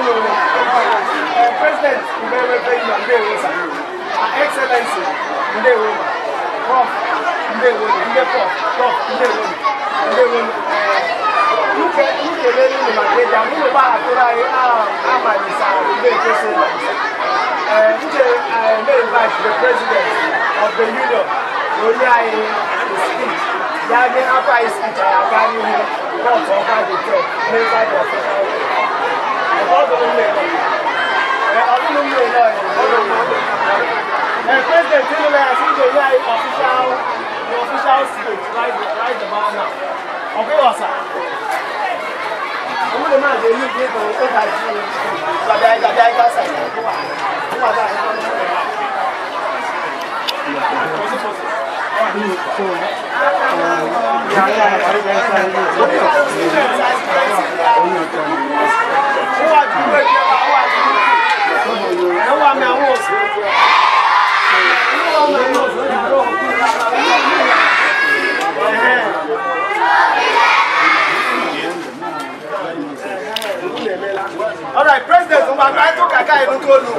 no no president mmepe yi na ndewo sa excellency ndewo prof ndewo Very prof prof ndewo ndewo nuke nuke lele ni makeja mune ba atura ye a amalisa nde kese na nde nde invite the president of the union onye anyị speech ya nye afọ anyị speech anyị aga n'ihu kọtụ ọba dị tọ n'ebe anyị ọfụma And President Tinubu, I think they are official, the official state right, right about now. Okay, sir. Owó lè máa dé ní ìdí ìtàn ó ga ju gbàgbà gbàgbà ẹgbà sàyà tó wà tó wà láàrin ọmọ ìgbà. Ìyá ìyá ìgbà ìgbà ìgbà ìgbà ìgbà ìgbà ìgbà ìgbà ìgbà ìgbà ìgbà àwọn àdúgbò ẹgbẹ́ wa àwọn àdúgbò ẹ wà mí àwọn òsì ẹ wà mí àwọn òsì àárọ̀ ọ̀rọ̀ president ń bá bá tó kàkà ìlú tó lù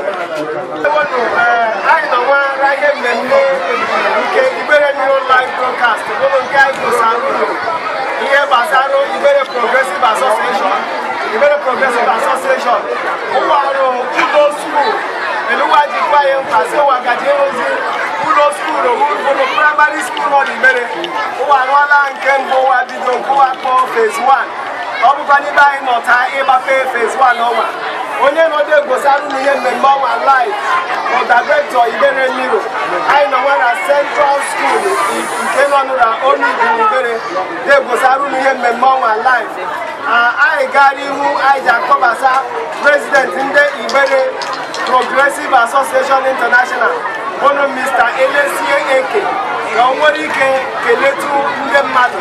ẹ̀wọ̀nù àìnà wọn ráyé mẹ́lẹ́ nke ìbéèrè ní online broadcast gbogbo nke àìkú sáà ń lò ìyẹn bàtà ló ìbéèrè progressive association the very progress progressive association ụwarụ udo skuul eluwaji kwaye kasịwagaji ozi ụlọ skuul ụlọ praịmarị skuul nọ n'imere ụwa rụọla nke mbụ ụwa go nkụwa kpọọ phase 1 ọ bụkwa n'ebe anyị nọta ịgbafe phase 1 ọnwa onye nọdụ egbosarụ na ihe mmemme ọnwa live bụ dairektọ ibere mmiri anyị nọnwa na central skuul nke nọ nụra onu ibu ibere na egbosarụ na ihe mmemme ọnwa live anyị uh, gara ihu anyị ji akọbasa prezidenti ndị Igbere Progressive Association International bụrụ Mr. Elesie Eke ka o nwere ike keletu ndị mmadụ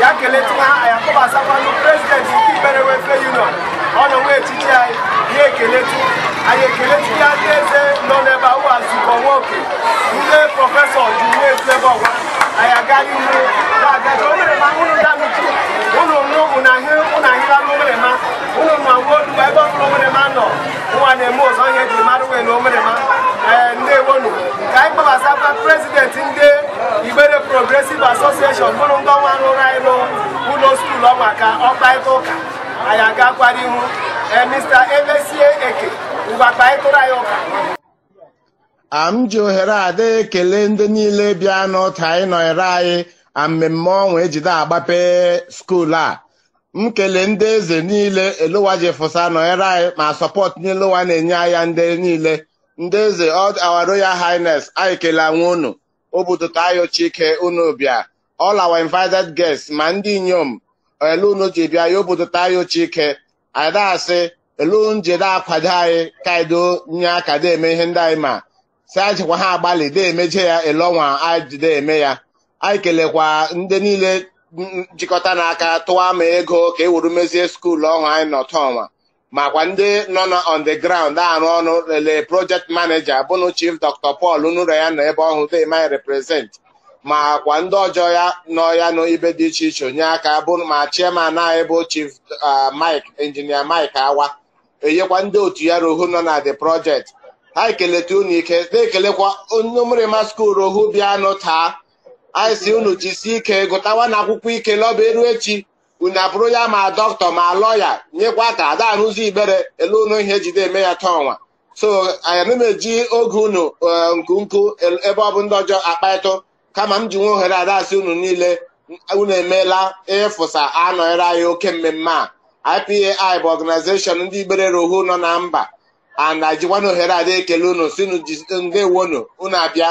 ya keletu ha anyị akọbasakwanụ prezidenti nke Igbere Welfare Union ọ nọ echichi anyị ya ekeletu anyị ekeletu ya ndị eze nọ n'ebe ahụ azụkọ nwoke ndị prọfesọ ji nwe etu ebe ọwa anyị agaghị ihu na-aga o mere ma hụrụ ya na eh, ndị Igbere bụrụ ndị ọnwa rụrụ anyị n'ụlọ skuulu ọnwa ka ọ kparịta ụka anyị agakwara ihu ee eh, Mr. Emesie Eke ngwa kparịtụrụ anyị ụka am ji ohere ada ekele ndị niile bịa n'ụta anyị nọnyere anyị na mmemme ọnwa ejide agbape a m kele ndị eze niile elowa jefụsa nọnyere anyị ma sọpọt n'elowa na-enye anya ndị niile ndị eze our royal highness anyị kelee nwe unu obudote ayo ike unu bịa all our invited guests ma ndị inyom elu unu ji bịa ya obudote ayo ike ada elu njede akwado anyị kaido nye aka eme ihe ndị anyị ma si ajikwa ha agbalị de emeje ya ọnwa anyị jide eme ya anyị kelekwa ndị niile njikọta n'aka tụwa ma ego ka e wuru mezie skuulu ọhụụ anyị n'ọtọnwa makwa ndị nọ na on the ground arụ ọnụ lele project manager bụnụ chief dr paul nụrụ ya na ebe ọhụụ they might represent makwa ndị ọjọọ ya nọ ya n'ibe dị iche iche onye aka bụrụ ma chairman anyị bụ chief mike injinia mike awa enyekwa ndị otu ya rohu nọ na the project ha ekeleta unu ike na-ekelekwa onye mrịma skuulu rohu bịanụ taa anyị si unu jisi ike gụtawa na akwụkwọ ike lọba eru echi unu abụrụ ya ma dọkịta ma lọya nyekwa ka ada arụzi ibere elu unu ihe jide eme ya taa ọnwa so anyị na-eji oge unu eh, nku ebe ọ bụ ndị ọjọọ akpaịtụ kama m ji nwe ohere ada unu niile unu emeela ịfụsa anọnyere anyị oke mmemme a IPAI bụ ọganizeshọn ndị ibere rohu nọ na mba ana jikwana ohere ada ekele unu si nde wonu unu abịa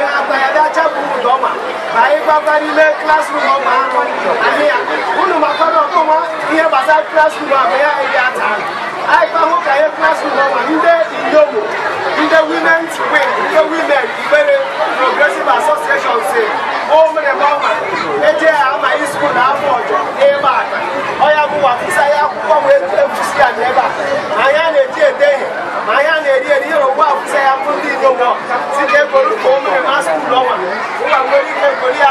ayébábá nílé classroom ọgbà akọ àníyàn kúlùmọ̀ akọ́dọ̀ tó wọ́n iye bàtà classroom àbẹ̀yà ẹ̀yà àtàlù aipahu ka yɛ klaasi leader ma ndé indomo ndé women's wing ndé women ìgbére progressive association se ɔmìnir bɔma ɛdí yɛ ama yi sukuu n'afɔ ɔjɔ ɛyɛba aka ɔyà mu wà fisa yɛ akokɔ mu efusi àná ɛba anya na edi ede yɛ anya na edi edi yɛrɛ wà fisa yɛ akokɔ ndi indomo si ké kolu kó ɔmìnir ma sukuu lɔ ma wà wéli ké kolu yà.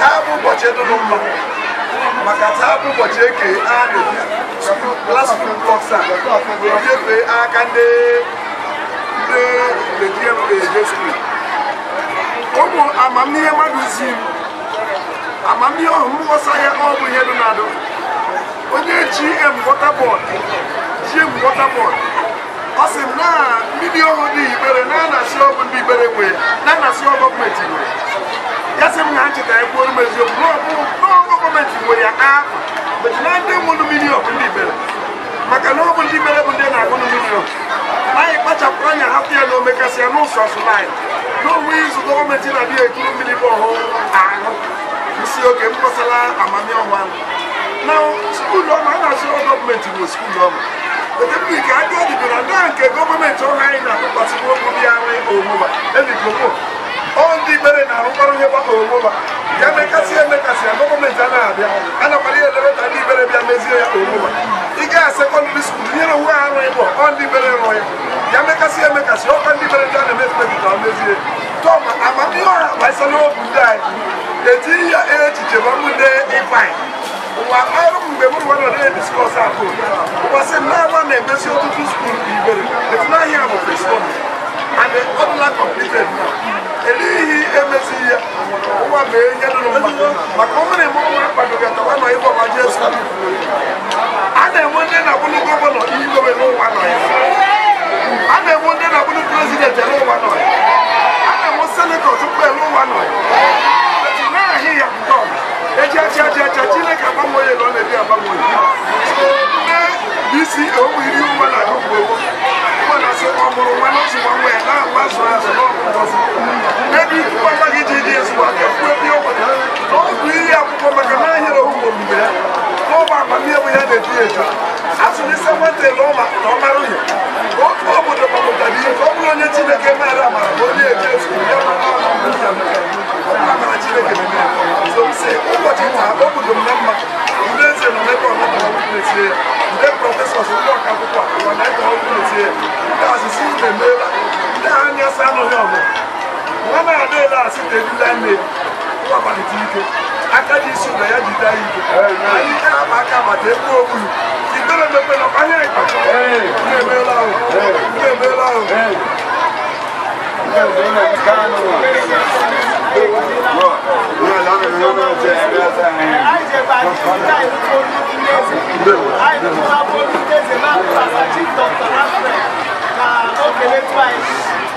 taa bụ ụbọchị dụrụ mma maka taa bụ ụbọchị eke a na-eji aka ndị ụmụ amamihe mmadụ zi m amamihe ọhụụ m ghọsa ya ọ bụ ihe dị na onye ji water board ji water ọ sị m na mmiri ọhụụ dị ibere na-anasị ọgwụ ndị ibere nwee na-anasị gọọmenti nwere ya m na ha chetara ekwuoru m eziokwu n'ọgụ gọọmenti nwere ya n'afọ mechi na ndị nwụrụ mmiri ọkụ ndị bere maka na ọ ndị mere bụ ndị na-agụ mmiri ọkụ anyị kpachapụrụ anya hapụ ya na omekasị ya n'ụzọ sụlaị n'onwe izu gọọmenti na-adịghị ekiri mmiri bụ ọhụụ ahụ isi oge m kpọsara ahụ. na skuulu ọma a na-asị gọọmenti bụ skuulu ọma ka agadi bụ na nke gọọmenti ọha anyị na-atụkwasị n'okwu dị ya nwe ebigomo ondi bere na umaru ye bako ngoba ya me kasi ya me kasi ya ngoko me jana abia ana pali ya lebe tani bere bia mezi ya ngoba ige ya secondary school ni ro wa ro ebo ondi bere ro ya ya me kasi ya me kasi o kandi bere jana me spe ki ta mezi to ma amami o ma so no eti ya e chiche ba mu de e fine wa ayo mgbe mụrụ nwa nọ na-ediscọs akụ ụwa sị mmanwa na-emesi ọtụtụ skuul ibere etu bụ fesbọk and ọ dịla elihi emezighị ya ụwa mee ihe dụrụ mma maka ọ mere mụọ nwere mkpadoga tawa ma ebe ọgba jesu a na-enwe ndị na-abụrụ gọvanọ igobe n'ụwa nọ ya a na-enwe ndị na-abụrụ prezidenti n'ụwa nọ ya a na-enwe senetọ tupu n'ụwa nọ ya na ahị ya nke ọma eji acha acha acha chineke agbanwe onye na ọ na-ebi agbanwe onye na-esi owuiri ụwa na agụgbo dị ọ nwere na mgbe ya ya na-eji eju asụlise na ọ mara otu obodo gbapụtara ihe ka ọ bụrụ onye Chineke maara amara onye eje ọlọ́ọ̀lọ́ wọ́n máa dé láàsì tẹ̀lé lẹ́nu wọ́n bá ti ike akadi isu na ya jide ayi ike ayi ike ama aka bata egbu ogbulu ìgbẹ́rẹ̀ mẹ́pẹ́ lọ kpanye ìgbà ilé emeela o Thank you.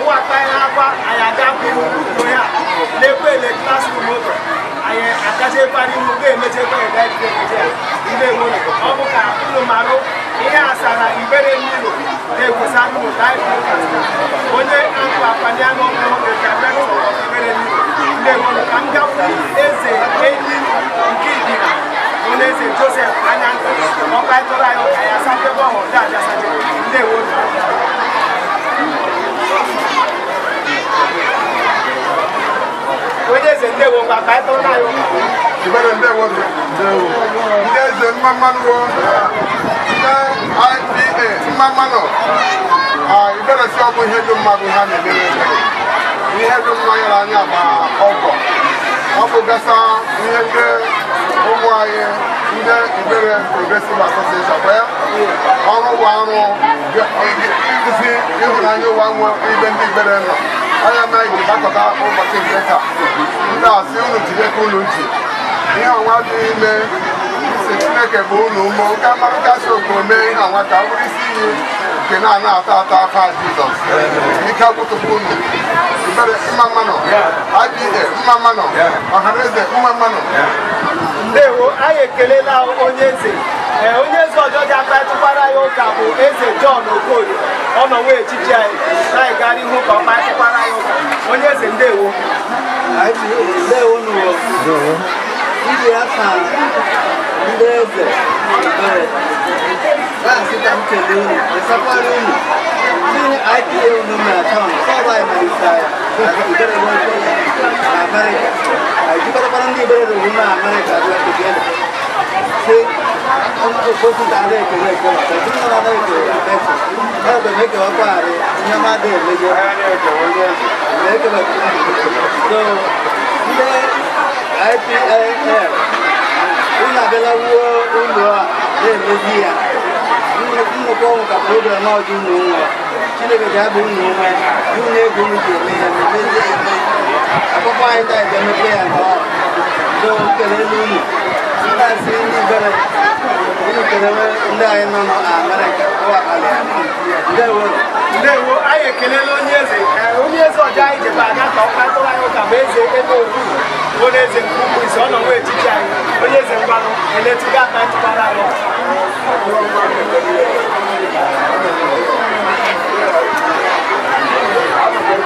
huwata ya hapa ayagabu uto ya lekwe le classroom oto aye akache pari mu ge meche kwa ya dai ge meche ile mo ne o bu ka kulu maro ihe asara ibere mmiri ne kwesa mu dai ko kasta onye akwa apani ano mo ge ka be ko ibere mmiri ile mo ne ka nga fu eze enyi nke idira onye eze joseph anyanko ọkwa ịtọrọ anyị ọka ya sabe bọ ọhụrụ dị aja sabe ndị ewo na ndewo nga ka eto nayo ibere ndewo ndewo ndị eze mmammanụwo ndị IPA mmammanụ ibere si ọ bụ ihe dị mmadụ ha na-emere ihe dị mmanya n'anya ma ọgọ ọ bụ gasa ihe ndị ụmụ anyị ndị ibere progresive association wee ọrụ ụwa arụ ịdụzi ịhụnanya ụwa nwe ibe ndị ibere nọ onye mere ji gbakọta ụbọchị nke taa ndị asị unu jideka unu nji ihe ọnwa dị ime si chineke bụ unu ụmụ nke mmarụkasị okoro mee ihe ọnwa ka bụrụ isi iyi nke na-ana ata ata afọ jizọs ike agwụtụpụ unu ibere mma mmanụ IPA mma mmanụ ọhaneze mma mmanụ ndewo anyị ekelela onye eze onye eze ọjọja mkpachịkwara ya ụka bụ eze John Okorie ọnọwe echichi anyị na-egara ihu ka ọ kpachịkwara ya ụka onye eze ndewo ndị aka ndị eze na-asị ka m kelee unu esakwara unu tinye IPA unu na akaụntụ sọba imalite anyị ibere na Amerịka jikọtakwara ndị ibere na Amerịka dị na Kebele kositare ekele ekele tẹsíkọlá ekele tẹsí ẹgbẹ mẹkẹ wọn kọ àrẹ nyamade ẹlẹjẹ mẹkẹlẹ so ndé ipl ina bẹlẹ wúwo ńlọ a dé ẹlẹjì ya nnukwu ọnwụ ka pụrụ dịrị n'ọjụ ụmụ nwa chineke ji abụ ụmụ nwa nwunye ego m ji eme ya mmezie eme akpụkpọ anyị taa emepe ya nke ọ so kelele unu ndị asị ndị bere ndị anyị nọ n'amerịka ụwakalị ya ndewo ndewo anyị ekelela onye eze onye eze ọjọọ anyị jebe aga ka ọ kpatụrụ anyị ụka ma eze ebe owu bụ na eze nke ukwu isi ọ nọ nwa echichi anyị onye eze mgbanụ eletiga aka ntụbara anyị Thank you.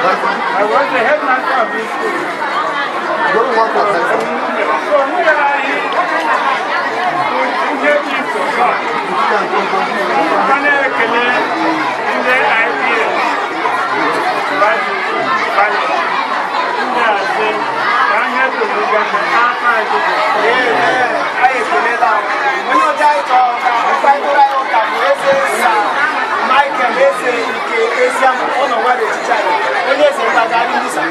I was the headmaster of this school. What do you want to say? So we are here to get you to God. Panel Kele in the idea. But, but, we are saying, I'm here to look at the after I do this. Yeah, I agree with that. When you die, I'm going ezi ama ọ nọ nwa n'etiti anyị onye eze mpaghara ndị sa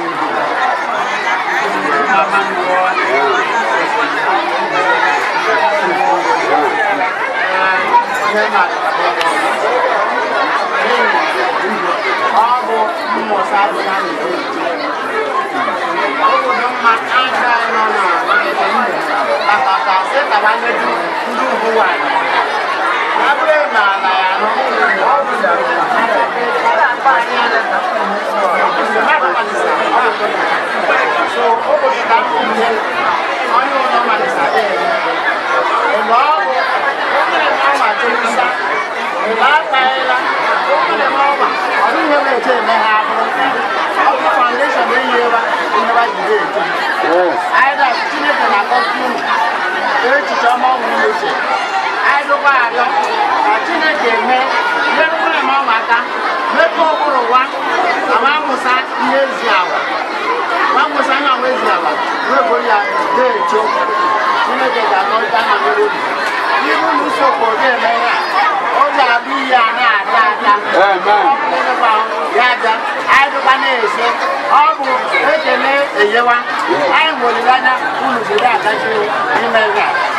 ọ bụ mmụta adịghị anyị obodo mma aka nọ na akpakata sịtawanye ndị uwe anyị Either ihe ezi agwa nwakwụsị anya nwa ezi agwa n'oge ya na-echo chineke ga-anọrịta na mmiri obi ibu na usokwu ga-eme ya ọ ga-abụ ihe a na-ata ata ya aja anyị dụkwa na-ese ọ bụ ekele enyewa anyị nwere anya unu ga-agachi ime ya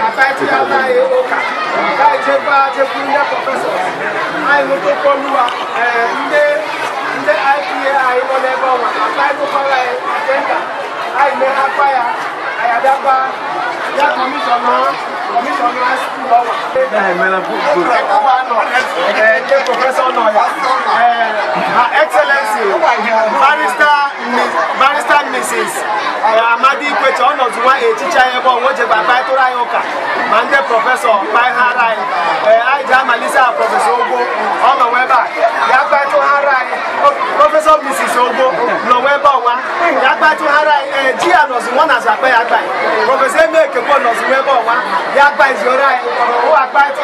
àbájí aláyé ọkà láì jẹ́ bá jẹ́kú ní pọfẹ́sọ̀ àìmú tó kọlùwà ndé ndé ipa àìmọ́lẹ̀ ẹgbẹ́ ọmọ àbájí tó kọ́lá ẹ àjẹ́ńdà àìmọ́ apáyà àyàdápa yá kọmíṣọ̀nà kọmíṣọ̀nà sílùú ọwà. ẹ ẹ pọfẹ́sọ̀ náà yà ẹ Excellency barrister. barista Mrs uh, Amadi Ikwecha ọ nọzụwa echicha ya ebe ọwa o kparịtụrụ anyị ụka ma ndị prọfesọ kpaghara anyị ee uh, anyị ji amalite a prọfesọ Ogbo ọ nọwa ya kparịtụghara anyị prọfesọ Mrs Ogbo nọwa ebe ya anyị ee uh, ji ya na azụ akpa ya akpa prọfesọ Emekekwo nọzụwa ebe ya anyị ụwa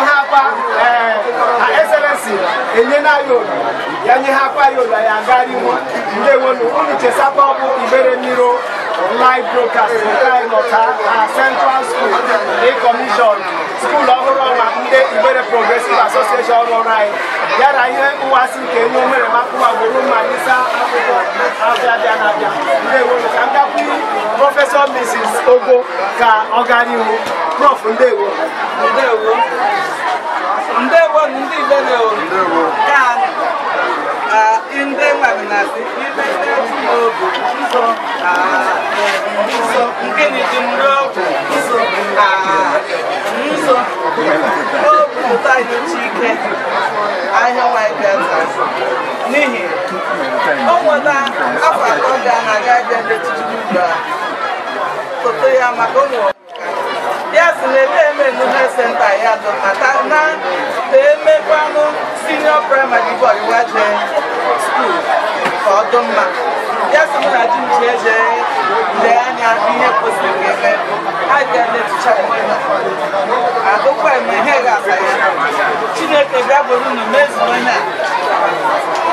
ha akwa ee enye na ya nye ha akwa ya Asabagwu Ibere Miro live broadcast nke ịnọta na Central School dị kọmishọn skuul ọhụrụ ọnwa ndị Ibere Progressive Association ọrụ ọrụ anyị ya ihe nwasị nke nye omere makụwa gboro mma n'isa akwụkwọ abịa abịa na-abịa ndewo ka ndakwu prọfesọ Mrs. Ogo ka ọ gara ihu prof ndewo ndewo ndewo ndị Igbo ndewo ka ndị nwa na-asị nsọ nsọ ah, nke na-ejimri ọgwụ nsọ nsọ ah, obi ụta nyocha ike ahịa nwanyị n'ihi o nweta afọ atọ ga na-aga abịa n'etiti ugbu a foto ya maka ụmụ ya si na ebe eme nnuhe senta ya dọtata na emekwanụ ya so na ji jee jee lee anya ihe kwesịrị eme ha bịa na-etucha agụkwa eme ihe ga-asa ya chineke bịa bụrụ unu mezuo ihe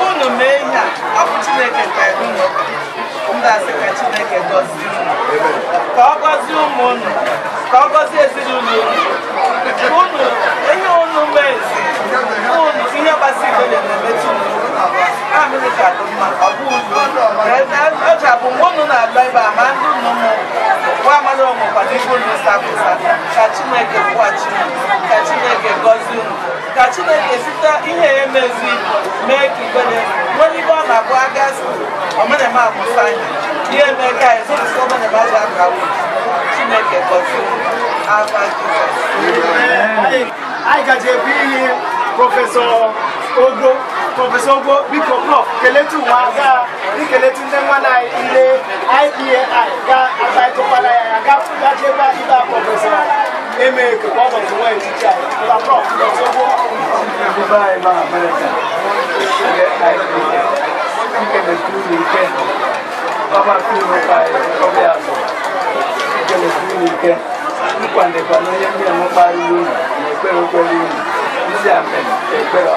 a unu mee ihe a ọ bụ chineke kpere unu ndasị ka chineke gọzie unu ka ọ gọzie ụmụ unu ka ọ gọzie ezinụlọ unu unu ihe unu mezi unu ihe gbasiri ike na-emetụ unu echapu mgbe unu na-abịa ebe a ma ndị unu nwa ka chineke chineke gọzie ka chineke ihe ya mezi mee ka nwere ọ na-abụ aka chineke gọzie anyị ihe ogo Prọfesọ Ogo biko prof keletu nwa ga ikeletu ndị nwa na ile IPAI ga agbaịtụkwala ya ya gachekwa ibe a prọfesọ eme ka ọ bụ nwa etiti anyị ma prof Prọfesọ Ogo Baba fi mi ka ẹ kọ́bí àgbọ̀, ìkẹlẹ̀ fi mi kẹ́, nípa nípa ló yẹ kí ẹ mọ́ parí lónìí, ẹgbẹ́ rẹ pẹ̀lú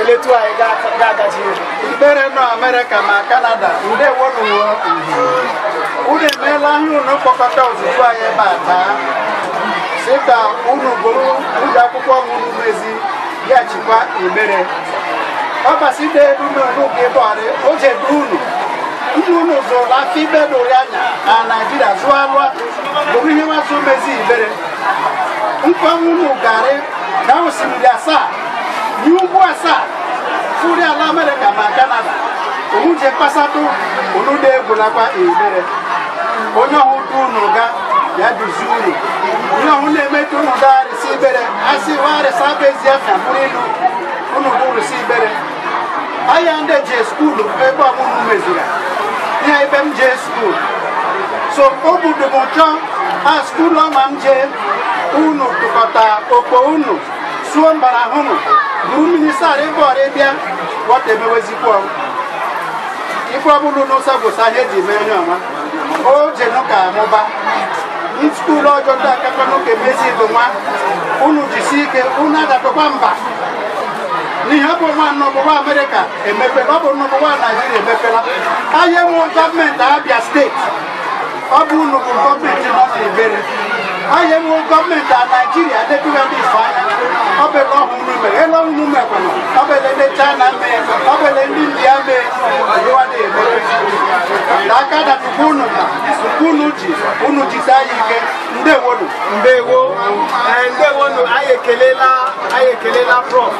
ekele tụọ anyị ga-agaji mkpere nọ amerịka ma kanada ndewonwo unu emeela ahịa unu kpọkọta ozugbo anyị ebe a taa si ka unu bụrụ ụdị akwụkwọ unu mezi ya chịkwa emere ọ gbasite elununuge bọrị ojedu unu ndị unu zụrụ afọ ibe dụrụ anya na naijiria zụọ alụa bụrụ ihe nwazụ mezi ibere nkwa unu garị na osimiri asaa yi ugbu asaa furi ala amerịka ma kanada onwuje kpasatụ olude egwulakwa emere onye ọhụrụ unu ga ya duzi unu onye ọhụ na-emetụ unu gaarịsị ibere asị warịsị abụ ezi afịa bụrụ ilu unu bụrụsị ibere ahịa ndị jee skuulu ebe ọmụmụ meziri ihe ebe m jee skuulu so o budobo chọọ a skuulu ọma m jee unu tụkọta okpo unu suo mbara ahụ bụ minista bọọdụ bịa wọta emewezikwa ife ọbụla n'ụsa bụ sa ihe eji mee onye ọma o je nụka amụba skuulu ọjọọ ndị akaka n'ụka emezi bụ nwa unu jisi ike unu adapụkwa mba n'ihe ọ bụ nwa n'ọbụwa amerịka emepela ọ bụ n'ọbụwa naijiria emepela anyị enweghị gọọmenti abịa steeti ọ bụ unu bụ gọọmenti nọ n'ibere anyị enwewo gọọmenti a naijiria dị ndị ifeanya obere ọhụrụ mere elu ọhụrụ mekwana obere ndị china mee ndị mee na aka unu na unu ji unu jisi anyị ike ndewonu ndewo ndewonu anyị ekelela anyị ekelela prof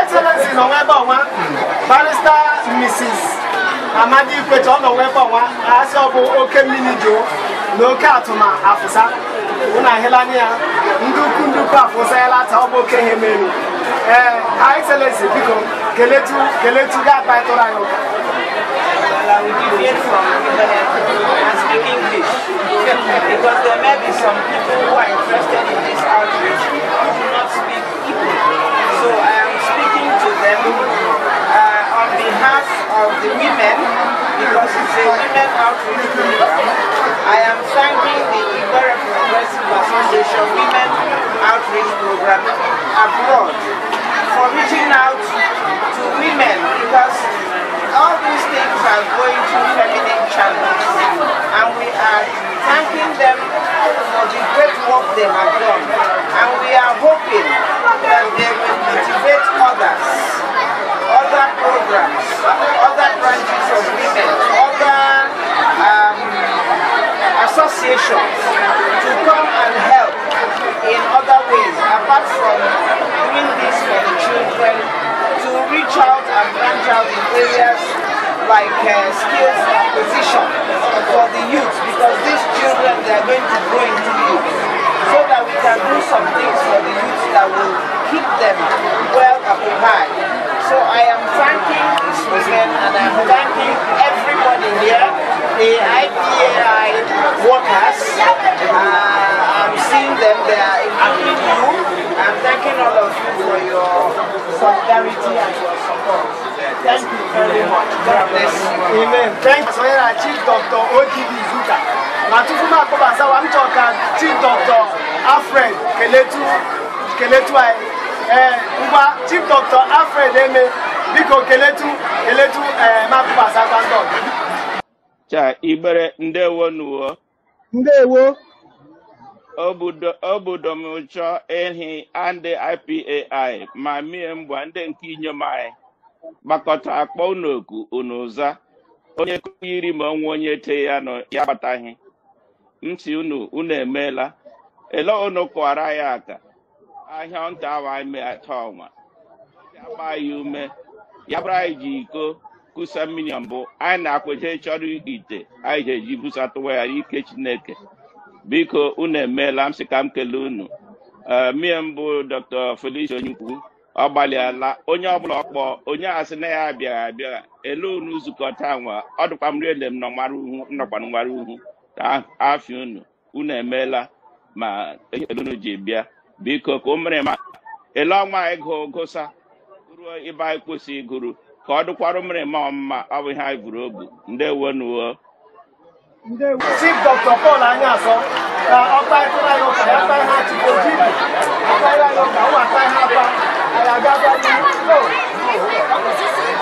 excellency nọ n'ebe ọnwa barista mrs amadi ikwecha ọ nọ ọnwa asị ọ bụ oke mmiri jụụ na oke atụma afụsa Eh, excellency keletu keletu I will from and speak English because there may be some people who are interested in this outreach who do not speak Igbo. So I am speaking to them on behalf of the women I am thanking the Igbo Progressive Association Women Outreach Program abroad for reaching out to women because all these things are going through feminine channels and we are thanking them for the great work they have done and we are hoping that they will motivate others other programs, other branches of women, other um, associations to come and help in other ways apart from doing this for the children to reach out and branch out in areas like uh, skills acquisition for the youth because these children they are going to grow into youth so that we can do some things for the youth that will keep them well occupied so I am thanking this movement and I'm thanking everybody here, the IPAI workers. Uh, I'm seeing them, they are including you. I'm thanking all of you for your solidarity and your support. Thank you very much. God bless you. Amen. Thanks for your Chief Dr. Odibi Zuka. Matufuka Kobasawa, I'm talking Chief Dr. Alfred Keletu, Keletu ee eh, ngwa chief dr alfred eme biko keletu keletu ee eh, makupasakwandọ cha igbere ndewo nuwo ndewo obodo m domchọ ehi ndị ipai ma mie mgba ndị nke inyom anyị gbakọta akpọ unu oku unu ụza onye yiri ma ọnwa onye te ya nọ ya agbataghị ntị unu unu emeela ele unu kụwara ya aka ahịa nta ahụ anyị atọ ọnwa agba ya ume ya anyị ji iko kusa mmiri mbụ anyị na-akweta chọrọ ite anyị ji eji busa tụwa ya ike chineke biko unu emeela m sị ka m kelee unu eh, mie mbụ dr felicia onyekwu ọ gbalịala onye ọbụla ọkpọ onye asị na ya abịaghị abịa ele unu zukọta nwa ọ dịkwa m riele m nọkwara uhu nọkwara nwara uhu afịa unu unu emeela ma e, unu ji bịa biko ka ụmịrịma ele ọnwa gụọ gụsa ruo ịba anyị gụrụ iguru ka ọ dụkwara ụmịrịma ọmụma ọ bụ anyị buru obu ndewo nuwo anyị ụka ha chike ojibi akara anyị ụka ụwa ha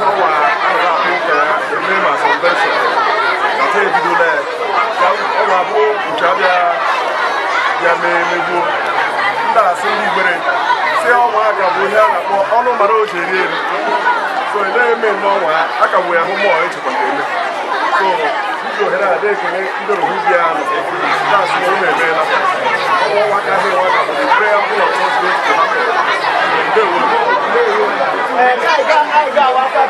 n'ọnwa a na-akpọ eme ma sọnvenshọn na taa ebidola ya ọ ga-abụ nke bịa mee megbuo ndị asị ndị si a bụ ihe a na-akpọ ọnụ mara oche eri so na-eme n'ọnwa a ya mmụọ ohere ndị aka bụ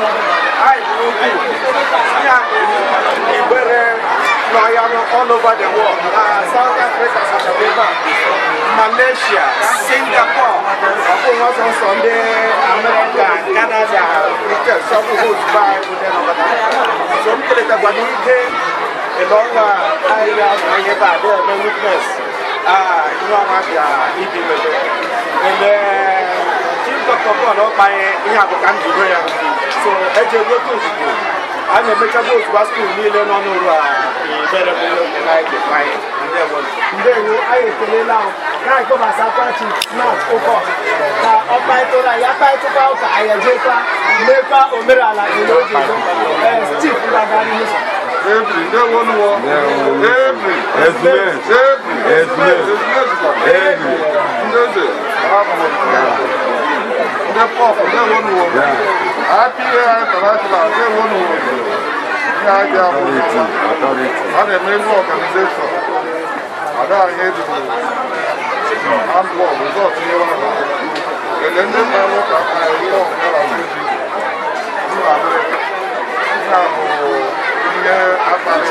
all over the world. Uh, South Africa, South Africa, Malaysia, Singapore, almost on Sunday, America, Canada, Britain, some who's by with them over there. So we can let the along the area of Ayaba, there are no witness. Ah, you know what, yeah, he did it. And then, Jim Dr. Paul, I have a country where I'm so ɛdi ewu ɛdi ozugbo ana emecha bụ otu baskul niile nọ n'ụlọ a ebere bụ na ebe anyị ndewo anyị ekelela na-agụ gbasa kwachi nọt ụkọ ka ọ kparịtara ya kparịtụkwa ụka anyị ejekwa mekwa omenala n'oge stif ndagharị n'ụzọ Every, no one war. Every, every, every, every, every ndị pọpụ ndị ewo nu wọbụ apị ya international ndị ewo nu wọbụ ihe aja abụọ a na-eme ebe ọganizeshọn ada anyị ebido handball resort ihe ọ bụ ele ndị mma nwoke aka ya ihe ọbụla na-eji nna bụ ihe akpali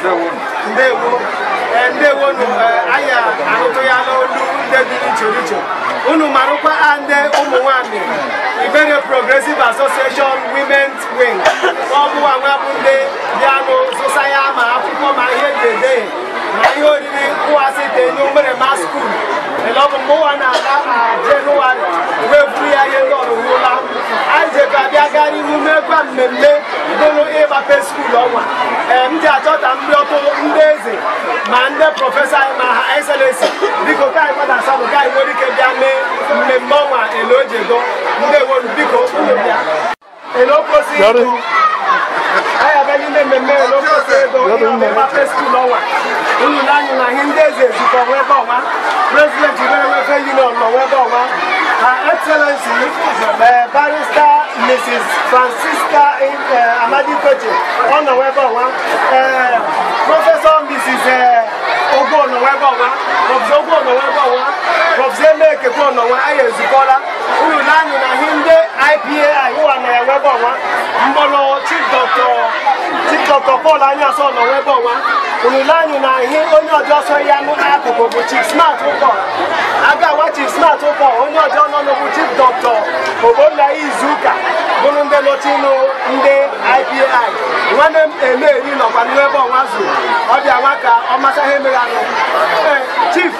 ndewo eh, ndewonu eh, anya ahụtụ ya n'olu nde dị iche iche unu marụkwa ndị ụmụ nwanyị Ibere Progressive Association Women's Wing ọ bụwa nwa bụ ndị bịa n'ụzụ saya ma akwụkwọ ma ihe ga na ihe oriri nkwasị dị n'obere ma skuul elọbụ mgbe ụwa na-ala na jenụwarị wee buru ya ihe ndị ọrụwụla anyị jekọ gaa n'ihu ihu mekwa mmemme bụrụ ịgbape skuul ọnwa ee m ji achọta ndị ọkụ ndị eze ma ndị prọfesọ anyị ma ha eselensi biko ka anyị kwada asadụ ka anyị nwere ike bịa mee mmemme ọnwa elojego ndị ewolu biko unu bịa elokwosi aya bɛ yin bɛ mɛmɛ yɛ lɔkɔ fɛ dɔ yi ɔmɛ ma fɛ sukuu lɔ wa inu la president bɛ wɛ fɛ yin ɔlɔ wɛ excellency uh, barrister mrs francisca uh, amadi koche ɔnɔ wɛ bɔ professor mrs. ọ ọnọwa ebe ọwa prọfesọ Ogo ọnọwa ebe ọwa prọfesọ Emekekwe ọnọwa anyị ezukọla na anyị ihe ndị ụwa na na na ihe onye ọjọọ sọ ya n'akụkụ bụ chief smart ụkọ aga awa chief smart ụkọ onye ọjọọ nọ n'okwu chief dọkịta Ogbonna Izuka bụrụ ndị nọchinu ndị IPAI nwanne m Emeri nọkwa n'ebe ọnwa zuru ọ nwa ka ọ ihe mere Eh, chief.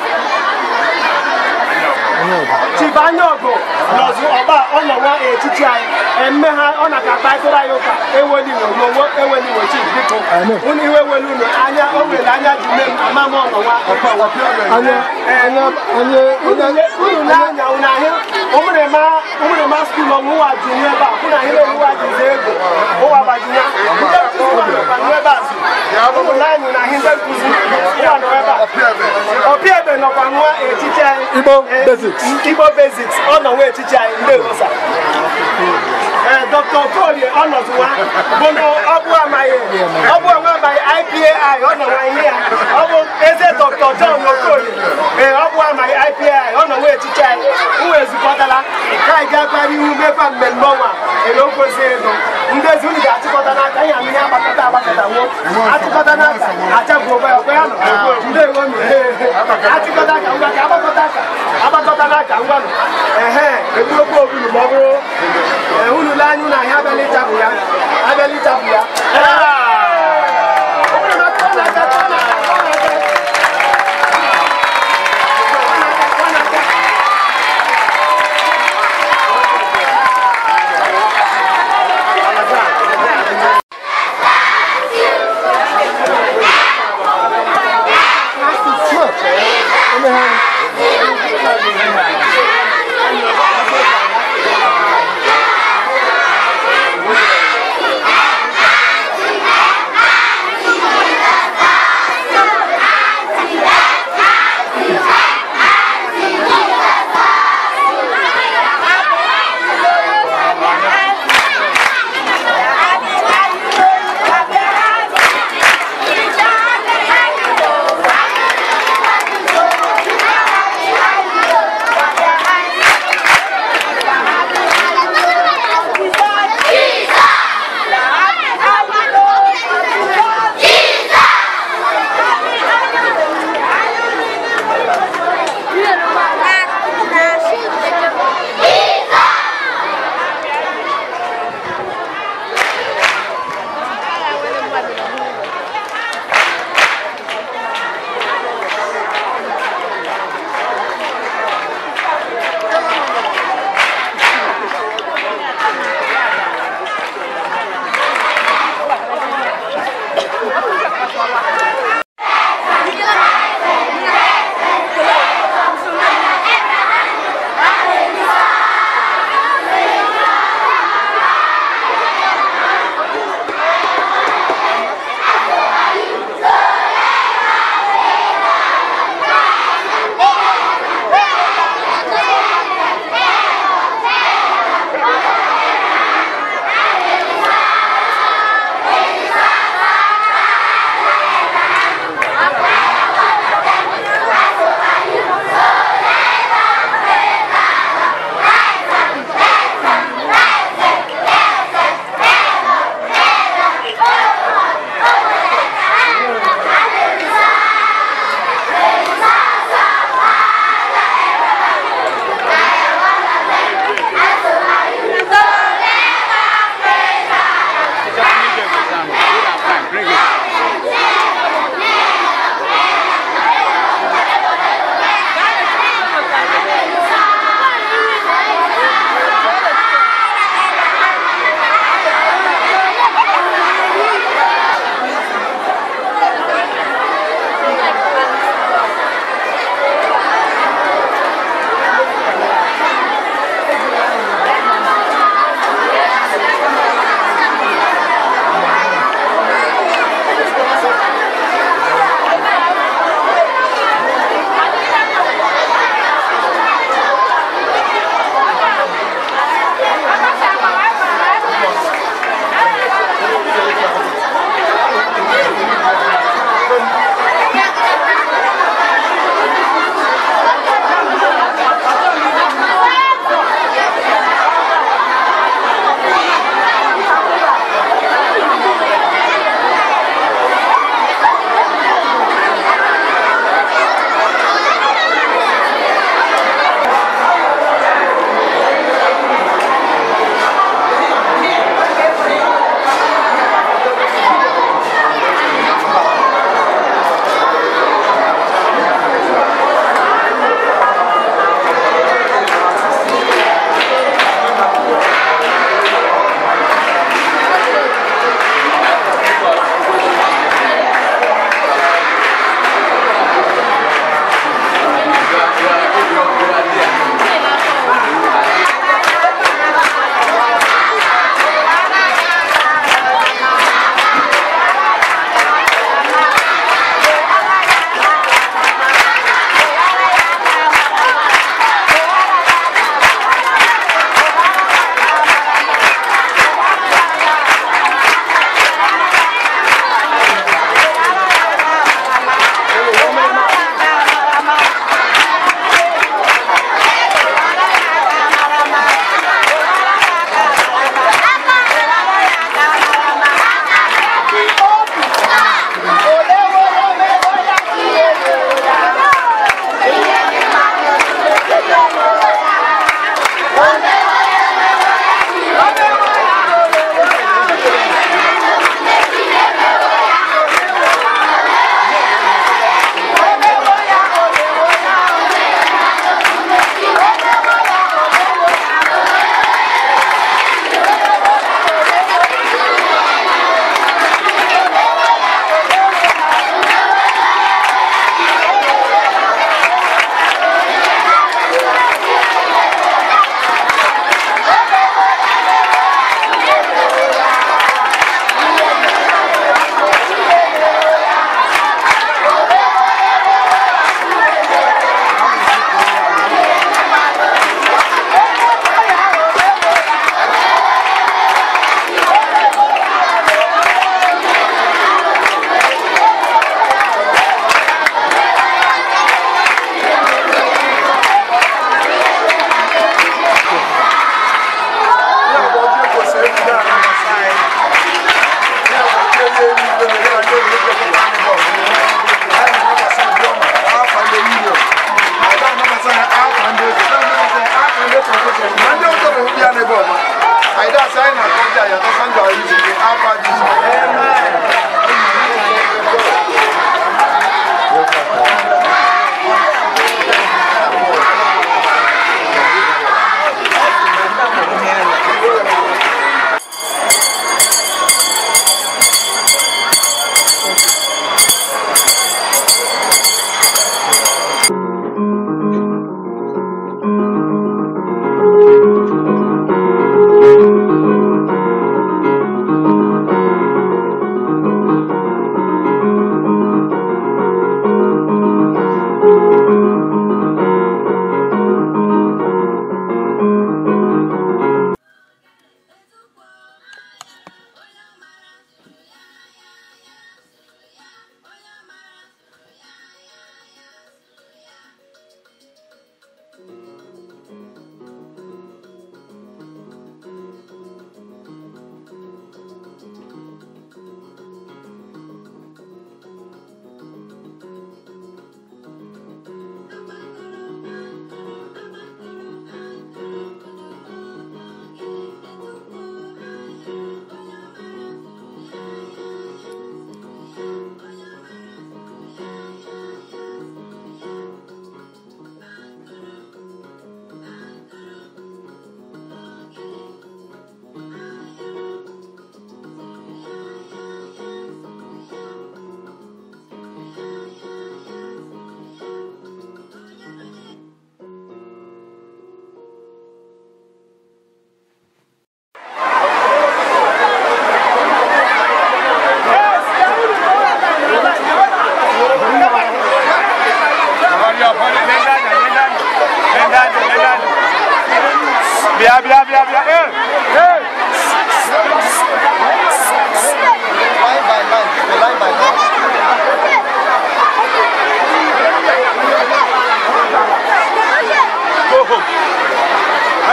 Chief Anyogo nọzụ ọba ọ nọwa etiti anyị emme ha ona ọ na ka kparịtara anyị ụka wo n'owo ewelino chief biko unu iwe welu unu anya o were anya ji me m ama m anya. unu na-anya unu ahịa umre ma umre ma skul ọmụ ụwa ji nye ebe a kwụ na ihe ụwa ji ze ego ụwa gbajina ndị nkuzi ma nọ ebe a zu ụmụ na anyị na ihe ndị nkuzi ya nọ ebe a ọpịa ebe nọkwa nwa etiche anyị igbo basics ọ nọ nwa etiche anyị ndị rosa Eh, Dr. Okorie ọnọdụwa bụnụ ọbụ amaghị ọbụ onwe amaghị IPAI ọ ihe ya ọ bụ eze Dr. John Okorie ee eh, ọbụ amaghị IPAI ọ nọwa echiche anyị ụwa ezukọtala ka anyị ga-akpara ihu mekwa mmemme ọnwa ere eh, okwozi ndị ezi unu ga-achịkọta n'aka ya ihe agbakọta agbakọta achịkọta n'aka ya ọkwa ya ndị ewo achịkọta aka ngwa ka agbakọta aka agbakọta n'aka ehe egbuokwu obulu ma ọ bụrụ ụlọ anyị na ahịa abịala ya abalị ya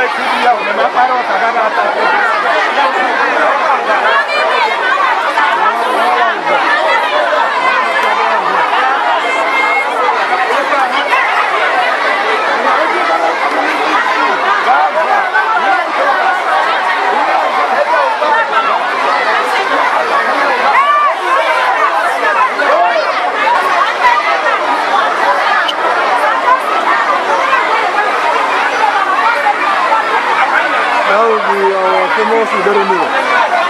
kulia umemapara wakagara Baba, ao famoso Bermuda.